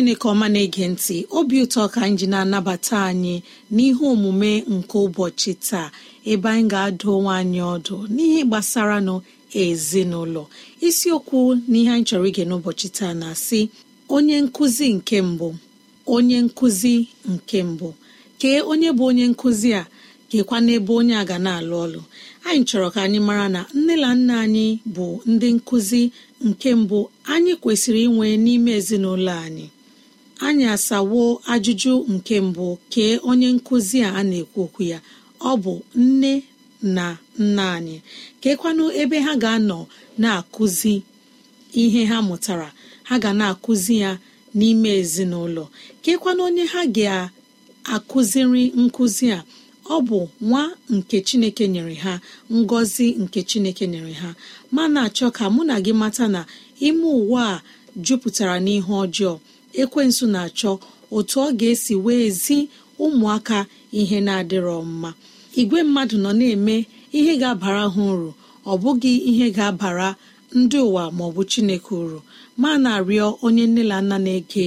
chineke ọma na-ege ntị obi ụtọ ka anyị ji na-anabata anyị n'ihe omume nke ụbọchị taa ebe anyị ga-adụ onwe anyị ọdụ n'ihe gbasara nụ ezinụlọ isiokwu n'ihe anyị chọrọ ige n'ụbọchị taa na-asị onye nkụzi nke mbụ onye nkụzi nke mbụ kee onye bụ onye nkụzi a gekwa n'ebe onye a ga na-alụ ọlụ anyị chọrọ ka anyị mara na nne na nna anyị bụ ndị nkụzi nke mbụ anyị kwesịrị inwe n'ime ezinụlọ anyị anyị asawo ajụjụ nke mbụ kee onye nkụzi a na-ekwu okwu ya ọ bụ nne na nna anyị keekwanụ ebe ha ga-anọ na-akụzi ihe ha mụtara ha ga na-akụzi ya n'ime ezinụlọ keekwanụ onye ha ga-akụziri nkụzi a ọ bụ nwa nke Chineke nyere ha ngọzi nke Chineke nyere ha mana achọ ka mụ na gị mata na ime ụwa a jupụtara n'ihe ọjọọ ekwensụ na-achọ otu ọ ga-esi wee zi ụmụaka ihe na-adịrọ mma igwe mmadụ nọ na-eme ihe ga-abara ha uru ọ bụghị ihe ga-abara ndị ụwa ma ọ bụ chineke uru ma na-arịọ onye nne na nna na-ege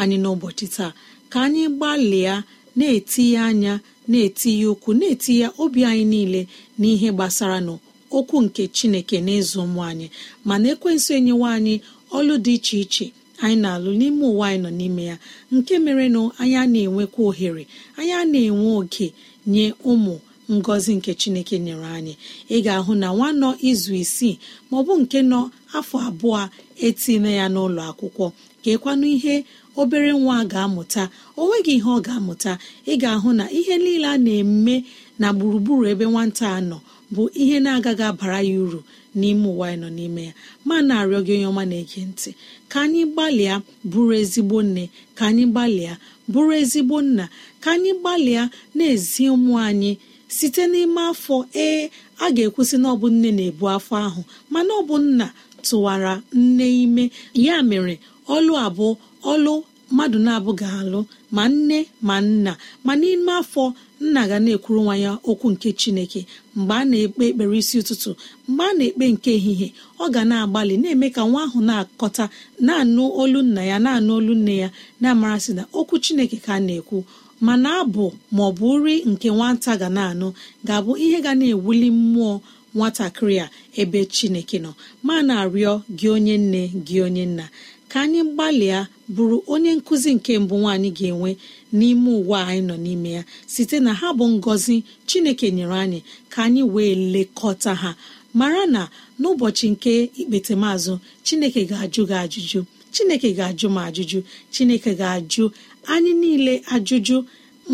anyị n'ụbọchị taa ka anyị gbalịa na-etinye anya na-etinye ụkwụ na-etinye obi anyị niile n'ihe gbasara n'okwu nke chineke n'ịzụ ụmụ anyị mana ekwensu enyewa anyị ọlụ dị iche iche anyị na-alụ n'ime ụwa anyị nọ n'ime ya nke mere na anyị a na-enwekwa ohere anyị a na-enwe oke nye ụmụ ngọzi nke chineke nyere anyị ị ga-ahụ na nwa nọ izu isii ma ọ bụ nke nọ afọ abụọ etinye ya n'ụlọ akwụkwọ kekwanụ ihe obere nwa ga-amụta o nweghị ihe ọ ga-amụta ị ga-ahụ na ihe niile a na-eme na gburugburu ebe nwata a nọ bụ ihe na-agaghị abara ya uru n'ime ụwa anyị nọ n'ime ya ma na-arịọ gị onye ọma na-ege ntị ka anyị gbalịa bụrụ ezigbo nne ka anyị gbalịa bụrụ ezigbo nna ka anyị gbalịa na-ezi ụmụ anyị site n'ime afọ ee a ga-ekwusị na ọ nne na-ebu afọ ahụ mana ọ bụ nna tụwara nne ime ya mere ọlụ abụọ ọlụ mmadụ na-abụ ga-alụ ma nne ma nna ma n'ime afọ nna ga na-ekwuru nwa ya okwu nke chineke mgbe a na-ekpe ekpere isi ụtụtụ mgbe a na-ekpe nke ehihie ọ ga na-agbalị na-eme ka nwa ahụ na-akọta na-anụ olu nna ya na-anụ olu nne ya na-amarasị na okwu chineke ka a na-ekwu mana abụ ma ọ bụ nri nke nwata ga na-anụ ga-abụ ihe ga na-ewuli mmụọ nwatakịrị a ebe chineke nọ ma na-arịọ gị onye nne gị onye nna ka anyị gbalịa bụrụ onye nkụzi nke mbụ nwaanyị ga-enwe n'ime ụwa anyị nọ n'ime ya site na ha bụ ngọzi chineke nyere anyị ka anyị wee lekọta ha mara na n'ụbọchị nke ikpetemazụ chineke ga-ajụ gị ajụjụ chineke ga-ajụ m ajụjụ chineke ga-ajụ anyị niile ajụjụ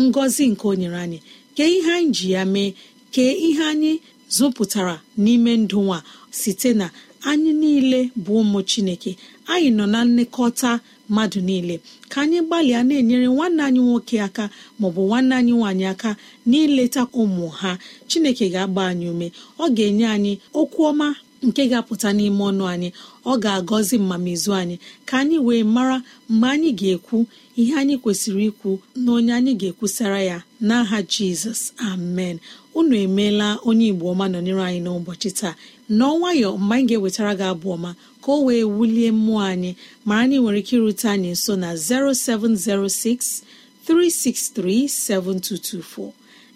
ngọzi nke o nyere anyị kee ihe anyị ji ya mee kee ihe anyị zụpụtara n'ime ndụ nwa site na anyị niile bụ ụmụ chineke anyị nọ na nlekọta mmadụ niile ka anyị gbalịa na-enyere nwanne anyị nwoke aka maọbụ nwanne anyị nwaanyị aka n'ileta ụmụ ha chineke ga-agba anyị ume ọ ga-enye anyị okwu ọma nke ga-apụta n'ime ọnụ anyị ọ ga-agọzi mmamizu anyị ka anyị wee mara mgbe anyị ga-ekwu ihe anyị kwesịrị ikwu na onye anyị ga-ekwusara ya n'aha Jizọs amen unu emeela onye Igbo ọma nọnyere anyị n'ụbọchị taa nọọ nwayọ mgbe anyị ga-ewetara gị abụ ọma ka o wee wulie mmụọ anyị mara na ị nwere ike irute anyị nso na 0706 363 7224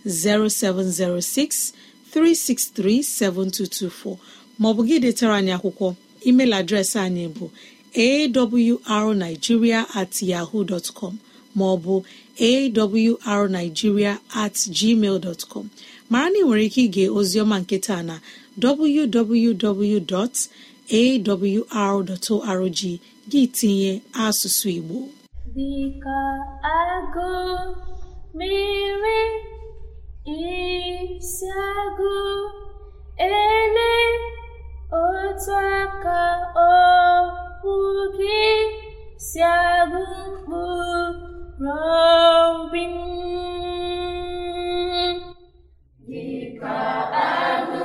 0706 363 7224 maọbụ gị detara anyị akwụkwọ email adreesị anyị bụ awrnigeria at yaho dot com maọbụ awrnigeria at gmail dot com mara na ị nwere ike ige ozioma nke na www.awr.org gị tinye asụsụ igbo dịka agụ mere isi ele otu aka okwu gị si agụ mkpụrụobi agụ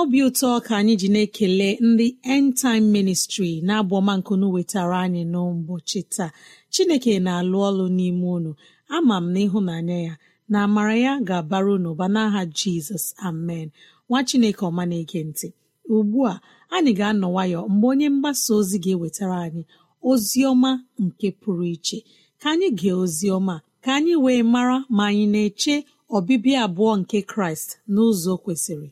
n'obi ụtọ ka anyị ji na-ekele ndị end time ministry na-abụ ọma nkunu wetara anyị n'ụbọchị taa chineke na-alụ ọlụ n'ime unu ama m na ịhụnanya ya na amara ya ga-abara unu ụba n'aha jizọs amen nwa chineke ọma na-ege ntị ugbu a anyị ga-anọ nwayọ mgbe onye mgbasa ozi ga-ewetara anyị ozi ọma nke pụrụ iche ka anyị gee ozi ọma ka anyị wee mara ma anyị na-eche ọbịbịa abụọ nke kraịst n'ụzọ kwesịrị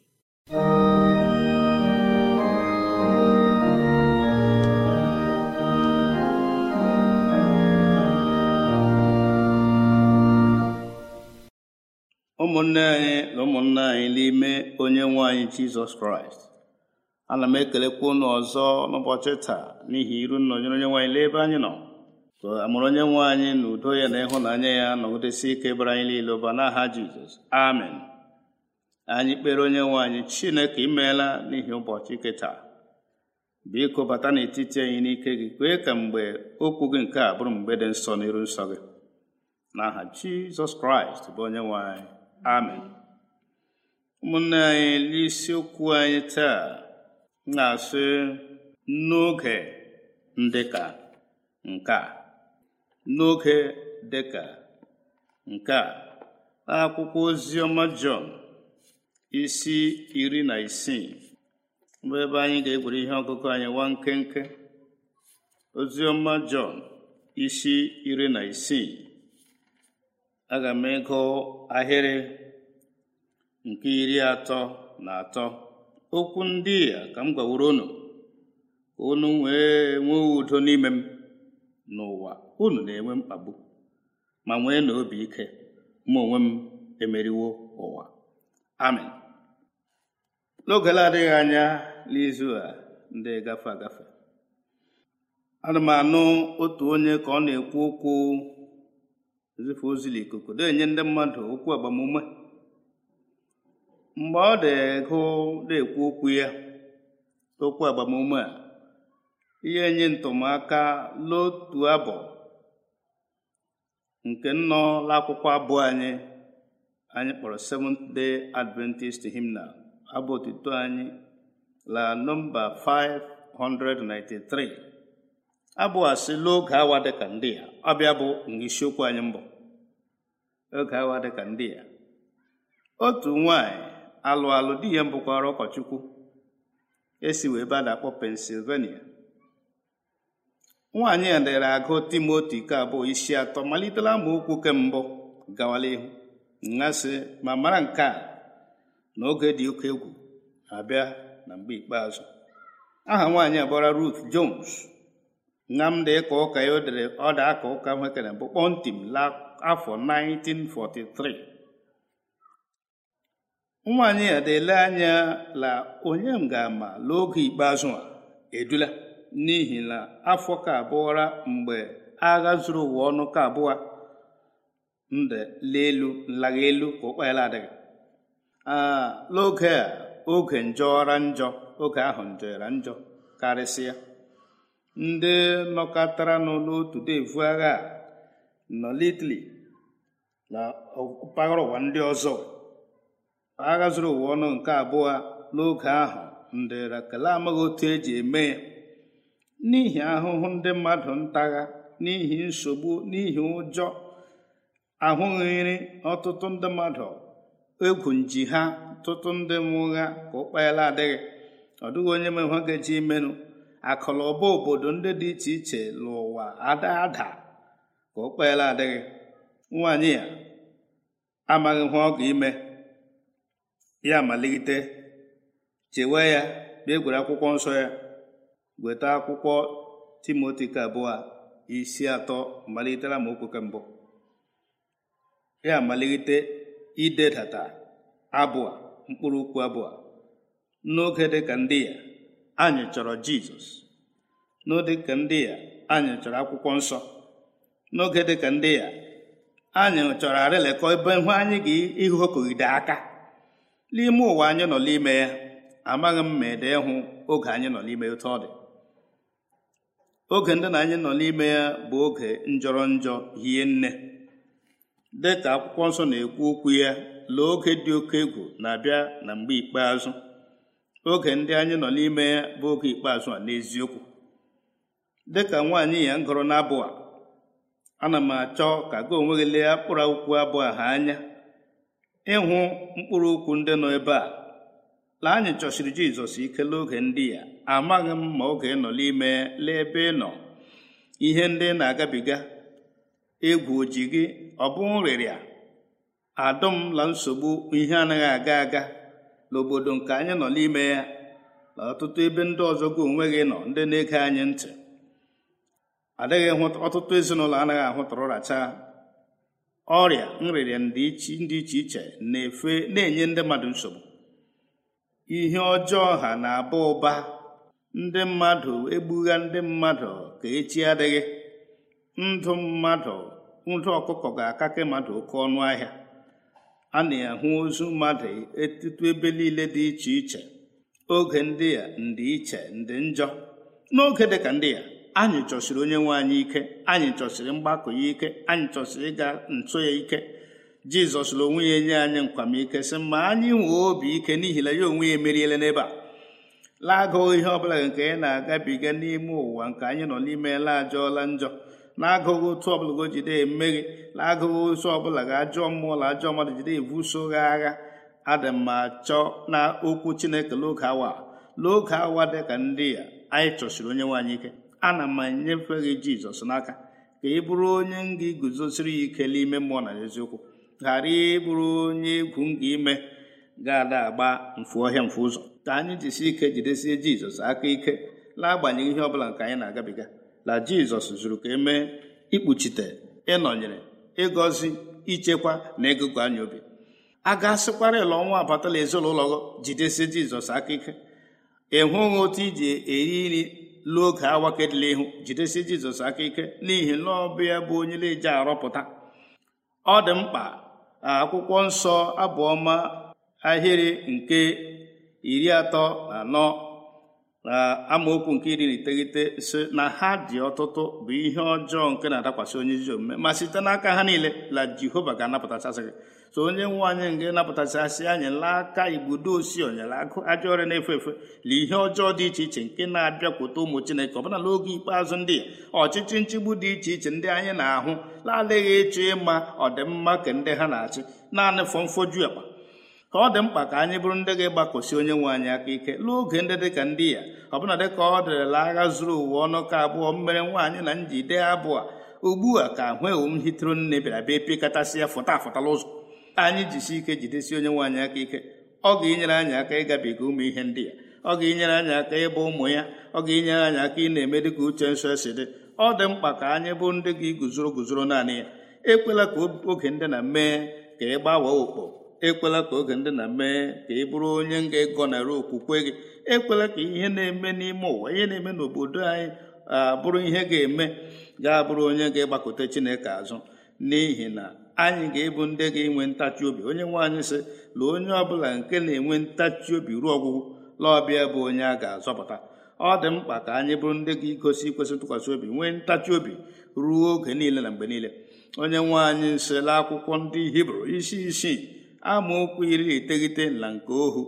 ụmụnne anyị na ụmụnna anyị n'ime onye nwe anyị jizọs kraịst ana m ekelekwa ụnụ ọzọ n'ụbọchị taa n'ihi iru nnọnyere onye nwe anyị n'ebe anyị nọ amụrụ onye nwe anyị na udo ya na ịhụnanya ya nọgidesi ike bara anyị niile ụba n'aha jizọs amen anyị kpere onye nwe anyị chineke imeela n'ihi ụbọchị ike taa biko bata n'etiti anyị n'ike gị kwee ka mgbe okwu gị nke a bụrụ mgbe dị nsọ n'iru nsọ gị n'aha jizọs kraịst bụ onye nwe anyị amen ụmụnne anyị n'isiokwu anyị taa na-asị n'oge dịka nke a n'oge dịka nke a akwụkwọ ozi ọma Jọn isi iri na isii bụ ebe anyị ga-egwere ihe ọgụgụ anyị nwa nkenke ozi ọma Jọn isi iri na isii aga m ịgụ ahịrị nke iri atọ na atọ okwu ndị a ka m gbaworo unu unu wee nwee udo n'ime m n'ụwa unu na-enwe mkpagbu ma nwee na obi ike ma onwe m emeriwo ụwa amen n'oge na-adịghị anya n'izu a ndị gafe agafe ana m anụ otu onye ka ọ na-ekwu okwu zife ozili ikuku enye ndị mmadụ okwu agbamume mgbe ọ na na-ekwu okwu ya okwu agbamume a ihe enye ntụmaka lotu abụ nke nnọ akwụkwọ abụọ anyị anyị kpọrọ Seventh Day Adventist hymnal abụ otuto anyị la nọmba 593 abụ asị n'oge awa dịka ndị a ọbịa bụ isiokwu anyị mbụ oge awa dịka ndị ya otu nwanyị alụ alụ di ya mbụkwara ụkọchukwu esi wee ebe a na-akpọ pensilvania nwaanyị a dere agụ timoti nke abụọ isi atọ malitela amaokwu mbụ gawala ihu ngasị ma mara nke a na oge dị oke egwu abịa na mgbe ikpeazụ aha nwaanyị a bụra Ruth Jones ụka ya dere ọda aka ụka nwekere bụ kpọmtim afọ 1943 nwaanyị a dele anya la onye m ga-ama n'oge ikpeazụ a edula n'ihi na afọ ka abụọra mgbe agha zuru ụwa ọnụ ka abụọ nde elu nlaga elu ka ụkpaela adịghị n'oge a oge njọra njọ oge ahụ njọra njọ karịsịa ndị nọkọtara nọ n'otu devu agha nọ n'itali na mpaghara ụwa ndị ọzọ agha zuru ụwa ọnụ nke abụọ n'oge ahụ ndị rakele amaghị otu eji eme ya n'ihi ahụhụ ndị mmadụ ntagha n'ihi nsogbu n'ihi ụjọ ahụghịrị ọtụtụ ndị mmadụ egwu nji ha ọtụtụ ndị mụgha ka ụkpa adịghị ọ dịghị onye ma ha ga-eji imenụ akụnụba obodo ndị dị iche iche n'ụwa ada ada ka o kpeela adịghị nwaanyị ya amaghị ihe ọ ga-ime ya malite chewe ya bịa gwere akwụkwọ nsọ ya weta akwụkwọ timoti ka abụọ isi atọ malitela ma okwu mbụ ya malite idedata abụọ mkpụrụ okwu abụọ n'oge dịka ndị ya anyị chọrọ jizọs n'oge ka ndị ya anyị chọrọ akwụkwọ nsọ n'oge dịka ndị ya anyị chọrọ arịlekọ ebe ihu anyị ga ihu okogide aka n'ime ụwa anyị nọ n'ime ya amaghị m ma ede ịhụ oge anyị nọ n'ime otu ọ dị oge ndị na anyị nọ n'ime ya bụ oge njọrọ njọ hie nne dịka akwụkwọ nsọ na-ekwu okwu ya lee oge dị oke egwu na-abịa na mgbe ikpeazụ oge ndị anyị nọ n'ime ya bụ oge ikpeazụ a n'eziokwu dịka nwaanyị ya ngụrụ n'abụ a ana m achọ ka gị onwe gị lee mkpụrụ akwụkwọ abụ a ha anya ịhụ mkpụrụ okwu ndị nọ ebe a lee anyị chọsiri jizọs ike n'oge ndị ya amaghị m ma oge ị nọ n'ime lee ebe ị nọ ihe ndị na-agabiga egwu oji gị ọ bụ nrịrịa la nsogbu ihe anaghị aga aga n'obodo nke anyị nọ n'ime ya na ọtụtụ ebe ndị ọzọ gị onwe gị nọ ndị na-ege anyị ntị adịghị ọtụtụ ezinụlọ anaghị racha ọrịa nrịrịa ndị iche iche na-efe na-enye ndị mmadụ nsogbu ihe ọjọọ ha na-aba ụba ndị mmadụ egbugha ndị mmadụ ka echi adịghị ndụ mmadụ ndụ ọkụkọ ga-akake mmadụ oke ọnụ ahịa a na-ahụ ozu mmadụ etutu ebe niile dị iche iche oge ndị a ndị iche ndị njọ n'oge dịka ndị ya anyị chọsiri onye nwe anyị ike anyị chọsiri mgbakọ ya ike anyị chọsiri ịga ntụ ya ike jizọs na onwe ya enye anyị nkwamike sị ma anyị nwee obi ike n'ihi na ya onwe ya emeriela n'ebe a lagoo ihe ọbụla nke anyị na-agabiga n'ime ụwa nke anyị nọ n'ime laajọọla njọ na-agụghị otu ọbụla go jide emeri na-agụghị otu ọbụla ga ajọ mmụọ na ajọ mmadụ jide ebuso agha adị mma chọ na okwu chineke n'oge awa n'oge awa dị ka ndị a anyị chọsiri onye nwaanyị ike ana m enyefe gị jizọs n'aka ka ị bụrụ onye m ga-eguzosiri ya ike n'ime mmụọ na eziokwu ghara ịbụrụ onye egwu m ga-ime ga-ada agba mfu ọhịa mfu ụzọ ka anyị jisie ike jidesie jizọs aka ike na-agbanyeghị ihe ọbụla nke anyị na-agabiga na jizọs zuru ka emee ikpuchite ịnọnyere ịgọzi ichekwa na ịgụgụ anya obi a ga-asịkwara ịlụ ọnwa abatala ezinụlọ jidesie jizọs aka ike ịhụ hụghị otu iji eri nri lụọ oge e ihu jidesie jizọs aka ike n'ihi na ọbịa bụ onye na-eji arọpụta ọ dị mkpa akwụkwọ nsọ abụọma ahịrị nke iri atọ na anọ na amaokwu nke iri na iteghete si na ha dị ọtụtụ bụ ihe ọjọọ nke na-adakwasị onye ezi omume ma site n'aka ha niile la jehova ga-anapụtachasị gị so onye nwe anyị nke napụtachasị anyị laa aka igbudo osi onyelakụ agụ ajọ ọrịa na-efe efe na ihe ọjọọ dị iche iche nke na-abịakwute ụmụ chineke ọbụna n'oge ikpeazụ ndị a ọchịchị nchigbu dị iche iche ndị anyị na-ahụ na-adịghị ịchọ ịma ọdịmma ka ndị ha na-achị naanị fọmfoju akpa ka ọ dị mkpa ka anyị bụrụ ndị ga-agbakọsi onye nwe anyị aka ike n'oge ndị dị ka ndị ya ọbụna dịka ọ dịrịla agha zuru ụwa ọnụ ka abụọ mmere nwaanyị na njide abụọ ugbu a ka ewu m hitere nne bịara bịa pịkatasị ya fụta afụtala ụzọ anyị jisi ike jidesi onye nwe anyị aka ike ọ ga-enyere anyị aka ịgabiga ụmụ ihe ndị ya ọ ga-enyere anyị aka ịbụ ụmụ ya ọ ga-enyere anyị aka ị na-eme ka uche nsọ si dị ọ dị mkpa ka anyị bụ ndị ga-eguzoro guzoro naanị ya ekwela ka oge ndị na mee ka ị gbawa okpo ekwela ka oge ndị na mee ka ị bụrụ onye ga-egọnara okwukwe gị ekwela ka ihe na-eme n'ime ụwa ihe na-eme n'obodo anyị abụrụ ihe ga-eme ga-abụrụ onye ga-agbakọta Chineke azụ n'ihi na anyị ga-ebu ndị ga-enwe ntachi obi onye nwaanyị anyị sị na onye ọbụla nke na-enwe ntachi obi ruo ọgwụgwụ laọbịa bụ onye a ga-azọpụta ọ dị mkpa ka anyị bụrụ ndị ga-egosi ikwesị ntụkwasị obi nwee ntachi obi ruo oge niile na mgbe niile onye nwaanyị anyị akwụkwọ ndị hibru isi isii amaokwu iri iteghete na nke ohu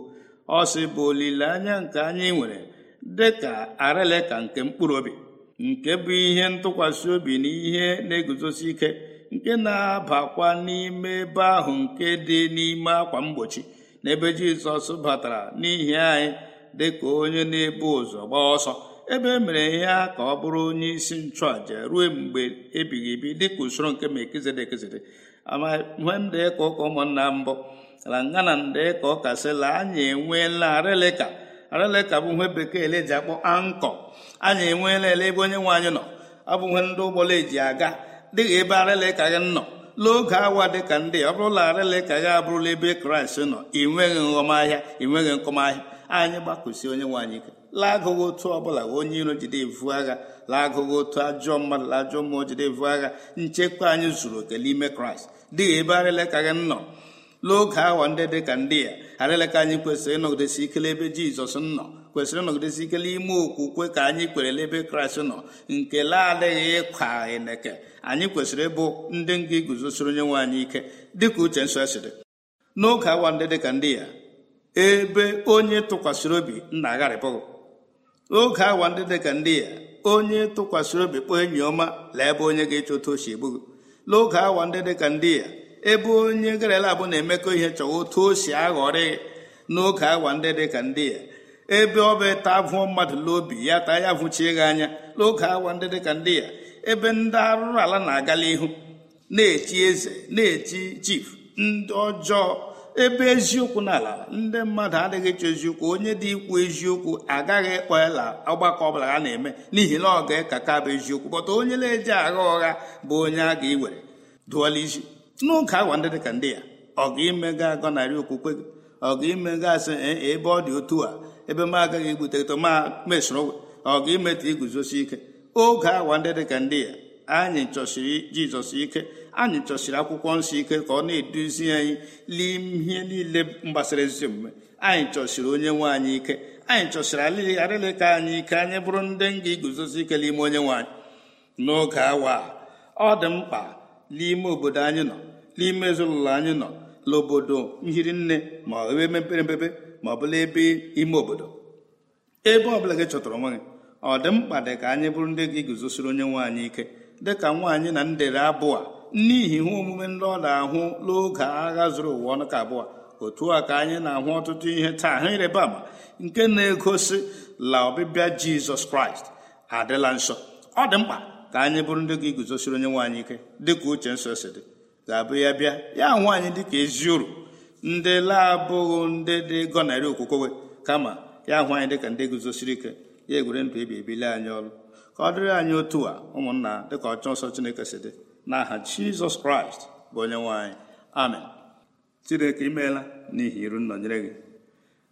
ọ sị bụ olileanya nke anyị nwere dị ka arịlịka nke mkpụrụ obi nke bụ ihe ntụkwasị obi na ihe na-eguzosi ike nke na-abakwa n'ime ebe ahụ nke dị n'ime akwa mgbochi n'ebe jizọs batara n'ihi anyị dị ka onye na-ebu ụzọ gbaa ọsọ ebe e mere ya ka ọ bụrụ onye isi nchụàja ruo mgbe ebighị ebi dịka usoro nke ma ekezede ekezede amamhemdee ka ụka ụmụnna mbụ ala ngana ndee ka ụka anya anyị enweela arịlịka arịlịka bụ ihe bekee eji akpọ ankọ anyị enweela ele ebe onye nwe anyị nọ abụghị ndị ụgbọla eji aga dịghị ebe arịlịka gị nọ n'oge awa dịka ndị ọ bụrụla arịlịka gị abụrụla ebe kraịst nọ ị nweghị nghọmahịa ị nweghị nkọmahịa anyị gbakụsi onye nwe anyị ike laagụghị otu ọbụla onye iro jide evu agha laagụghị otu ajọ mmadụ ajọ mmụọ jide evu agha nchekwa anyị zuru oke n'ime kraịst dị ebe arịleka gị nọ n'oge awa ndị dị ka ndị ya arịleka anyị kwesịrị ịnọgidesi ikele ebe jizọs nọ kwesịrị ịnọgidesi ikele ime okwukwe ka anyị kwere ebe kraịst nọ nke laadịghị ịkwa eneke anyị kwesịrị ịbụ ndị nga iguzosiri onye nwe anyị ike dịka uche nsọ siri n'oge awa ndị dị ndị ya ebe onye tụkwasịrị obi na-agharịpụghị n'oge awa ndị dịka ndị ya onye tụkwasịrị obi kpọọ enyi ọma lee ebe onye ga echeta ochi egbughị n'oge awa ndị dị ka ndị ya ebe onye gere bụ na-emekọ ihe chọwa otu o si aghọrị n'oge awa ndị dị ka ndị ya ebe ọ bụ ịta mmadụ n'obi ya taa ya vụchi gị anya n'oge awa ndị dị ka ndị ya ebe ndị arụrụ ala na-agala ihu na-echi eze na-echi chief ndị ọjọọ ebe eziokwu n'ala ndị mmadụ adịghị chọ eziokwu onye dị ikwu eziokwu agaghị ịkpọ ala ọgbakọ ọbụla ha na-eme n'ihi na ọ ga-ekaka bụ eziokwu bọta onye na-eji agha ụgha bụ onye a ga-ewere dụọla isi n'oge agwa ndị dịka ndị ya ọ ga imega agọnarị okwukwe gị ọ ga imega asị ebe ọ dị otu a ebe m agaghị ebuteto ma mesoro ọ ga imetụ iguzosi ike oge agwa ndị dịka ndị ya anyị chọsiri jizọs ike anyị chọsiri akwụkwọ nsọ ike ka ọ na-eduzi anyị n'ihe niile gbasara ezi omume anyị chọsiri onye nwe anyị ike anyị chọsiri ka anyị ike anyị bụrụ ndị nga iguzosi ike n'ime onye nwanyị n'oge awa ọ dị mkpa n'ime obodo anyị nọ n'ime ezinụlọ anyị nọ n'obodo nhiri nne ma ebe mepere emepe ma ọ bụla ebe ime obodo ebe ọbụla gị chọtara onwe gị ọ dị mkpa dị ka anyị bụrụ ndị gị guzosiri onye nwaanyị ike dịka nwaanyị na ndere abụọ a n'ihi ihe omume ndị ọ na-ahụ n'oge agha zuru ụwa ọnụ ka abụọ otu a ka anyị na-ahụ ọtụtụ ihe taa ha ịrịba ama nke na-egosi la ọbịbịa jizọs kraịst adịla nsọ ọ dị mkpa ka anyị bụrụ ndị gị guzosiri onye nwaanyị ike ike dịka uche nsọ si dị ga-abụ ya bịa ya nwaanyị anyị dịka ezi uru ndị laabụghị ndị dị gọnarị okwukwe kama ya hụ anyị dịka ndị guzosiri ike ya egwere ndụ ebi ebili anyị ọrụ ka ọ dịrị anyị otu a ụmụnna dịka ọchọ nsọ chineke si dị n'aha jizọs kraịst bụ onye nwanyị amen chineke imeela n'ihi iru nnọnyere gị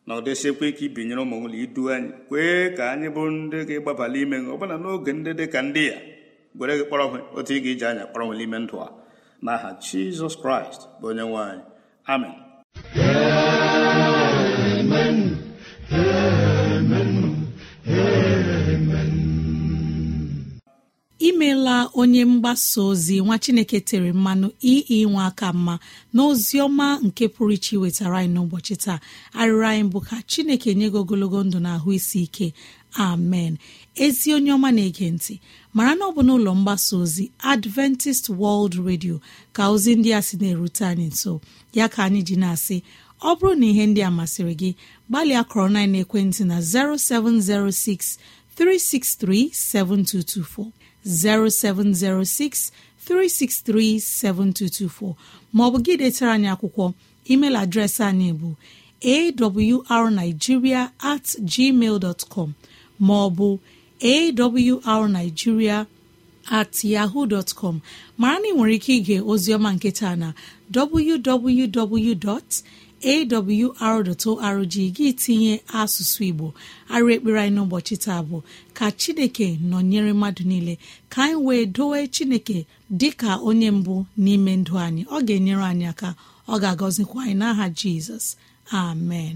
na ọ dịsịkwa ike ibinyere ụmụ nwụlọ idu anyị kwee ka anyị bụrụ ndị gị gbabala ime gị bụla n'oge ndị dị ka ndị ya gwere gị kpọrọ onwe otu ị ga-eji anya kpọrọ onwe n'ime ndụ a n'aha jizọs kraịst bụ onye nwanyị amen amen amen amen imela onye mgbasa ozi nwa chineke tere mmanụ iyi nwa aka mma na ozi ọma nke pụrụ iche wetara anyị n'ụbọchị taa arịrị anyị bụ ka chineke nye gị ogologo ndụ na ahụ isi ike amen ezi onye ọma na-ege ntị mara na ọ bụ n'ụlọ mgbasa ozi adventist world radio ka ozi ndị a sị na-erute anyị nso ya ka anyị ji na-asị ọ bụrụ na ihe ndị a masịrị gị gbalịa kọrọ na ekwentị na 0706 363 7224 0706 363 7224 maọbụ gị detara anyị akwụkwọ email adreesị anyị bụ awrnigeria at gmail com maọbụ awrnigeria at yahoo dtcom mara na ị nwere ike ige ozioma nketa na www. awr.org gị tinye asụsụ igbo arụ ekpere anyị n'ụbọchị taa bụ ka chineke nọnyere mmadụ niile ka anyị wee dowe chineke ka onye mbụ n'ime ndụ anyị ọ ga-enyere anyị aka ọ ga-agọzikwa anyị n'aha jizọs amen